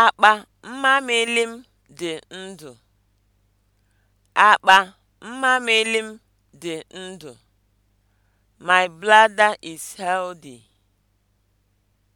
Akpa mmamịlị m dị ndụ. Akpa mmamịlị m dị ndụ. My bladder is healthy.